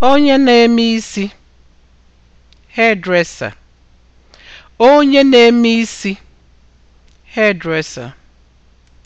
onye na-eme isi hairdresser onye